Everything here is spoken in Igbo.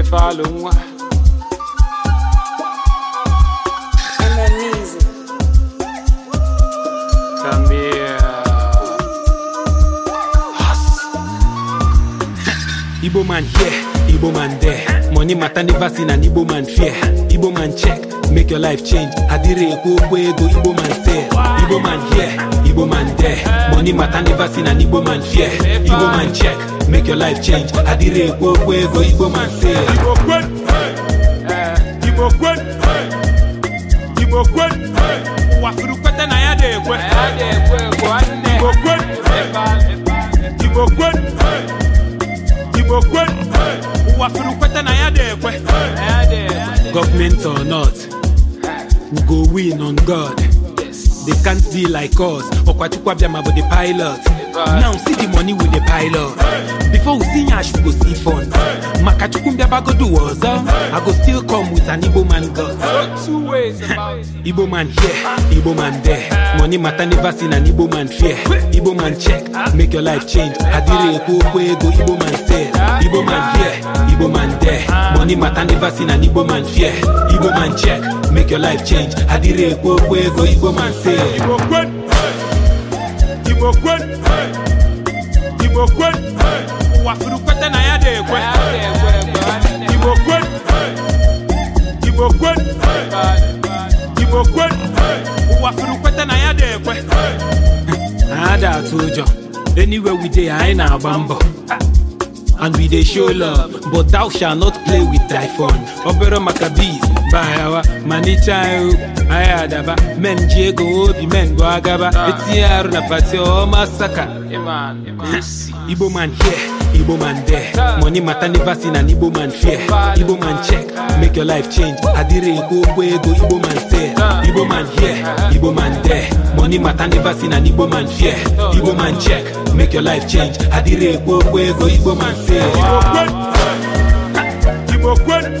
et parle-moi. Analyse. Camille. Igbo man here, Igbo man there. Money matter never seen an Igbo man fear. Igbo man check, make your life change. Adire ekwu okwu ego Igbo man there, Igbo man here, Igbo man there. Money matter never seen an Igbo man fear. Igbo man check. make your life change adịrị ekwu okwu ego igbo man say igbo kwen igbo kwen ụwa furu kweta na ya na-ekwe igbo kwen igbo kwen igbo kwen ụwa furu kweta na ya na Kwe. government or not we go win on god they can't be like us ọkwachukwu abịa ma bụ the pilot now see di money wey dey pile up before we see yash we go see funds makachukwu mbiabagodu ọzọ i go still come with an igbo man god igbo man here igbo man there money matter never seen an igbo man fear igbo man check make your life change adire ekwu okwu ego igbo man sell igbo man here igbo man there money matter never seen an igbo man fear igbo man check make your life change adire ekwu okwu ego igbo man sell igbo kwen igbo kwen okwe ụwa furu na ya dị ekwe ha ada atụ ụjọ anywhere we dey anyị na-agba mbọ and we dey show love but thou shall not play with thy phone obere maka bees payawa manicha ihu anyị adaba men ji ego obi men bụ agaba etinye arụ na pati ọma saka igbo man here igbo man there money mata never seen an igbo man fear igbo man check make your life change adịrị ekwu okwu ego igbo man say igbo man here igbo man there money mata never seen an igbo man fear igbo man check make your life change adịrị ekwu okwu ego igbo man say igbo kwen igbo kwen